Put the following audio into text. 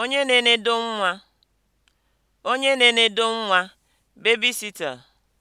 Onye na-enedo nwa (onye na-enedo nwa, babysitter)